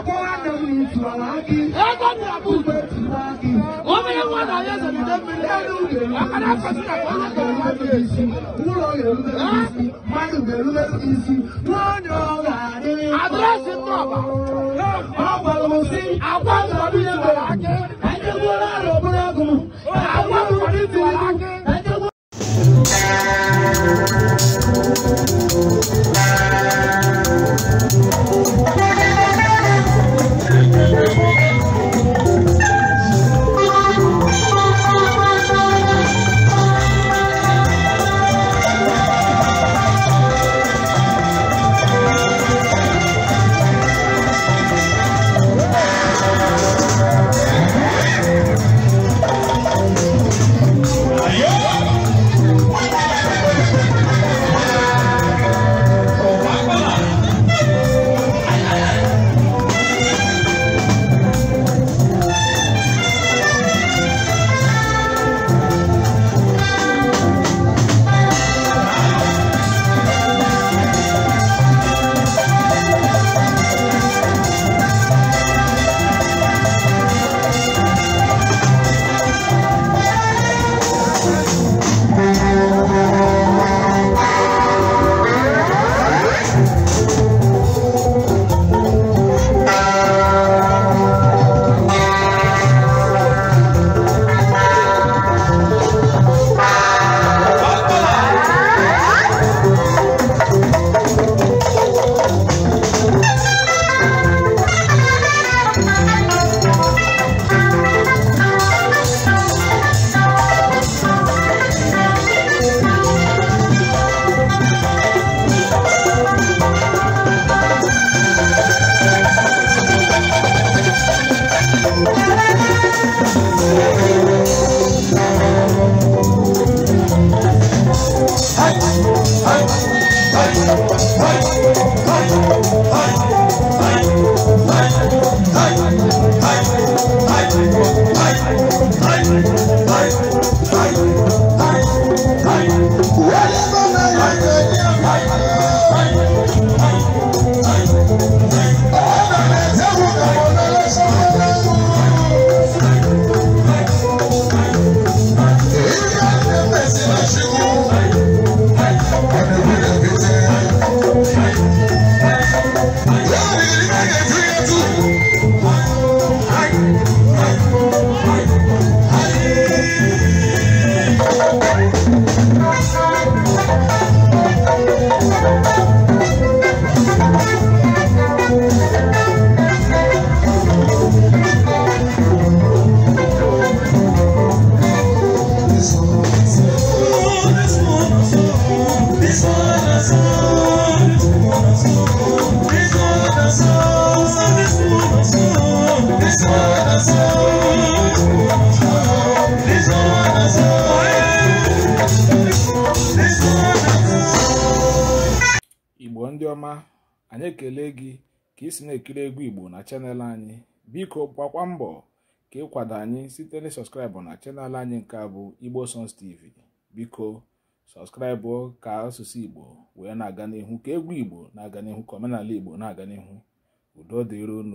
akọwa na m n'ituala aki ugbe tiwa aki onye nwa na ya zọgide mmiri elu uge akara afọsị na ọrụ ga-erube isi ụlọ ga-erube isi mmadụ ga-erube isi nwa onye ọrụ ndị ọma anyị ekele gị ka ị na-ekiri egwu igbo na chanel anyị biko gbakwa mbọ ka ị kwado anyị site na sọskraịbụ na chanel anyị nke a bụ igbo songs tv biko sọskraịbụ ka asụsụ igbo wee na-aga n'ihu ka egwu igbo na-aga n'ihu ka omenala igbo na-aga n'ihu udo dịron